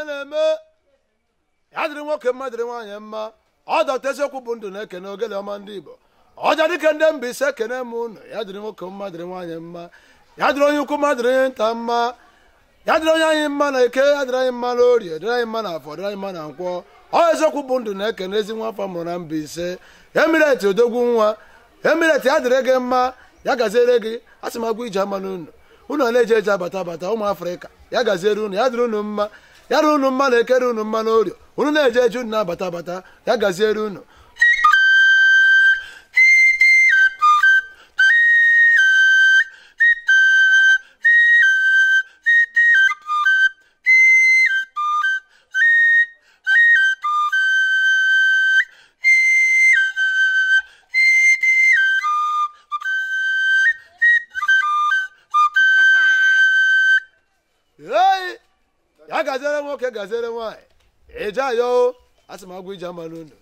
ife na-eme ya dịrị nwoke mma dịrị nwaanyị mma ọ eziokwu bụ ndụ na-ekene ogele ọma ndị Igbo ọja dịke ndị mba ise kene m unu ya dịrị nwoke mma dịrị nwaanyị mma ya dịrị onye ukwu mma dịrị nta mma ya dịrị onye anyị mma na eke ya dịrị anyị mma na orie dịrị anyị mma na afọ dịrị anyị mma na nkwọ ọ eziokwu bụ ndụ na-ekene ezi nwa afọ mụrụ na mba ise emireti odogwu nwa emireti ya dịrị gị mma ya gaziere gị asị m agwa ije ama n'unu unu na-eje eje abata abata ụmụ afrịka ya gaziere unu ya dịrị unu mma ya na unu mma ekere unu mma orio unu na-eje eje unu na-abata abata ya gaziere unu ya gaziere nwoke gaziere nwaanyị ije a asị m agwụ ije ama n'unu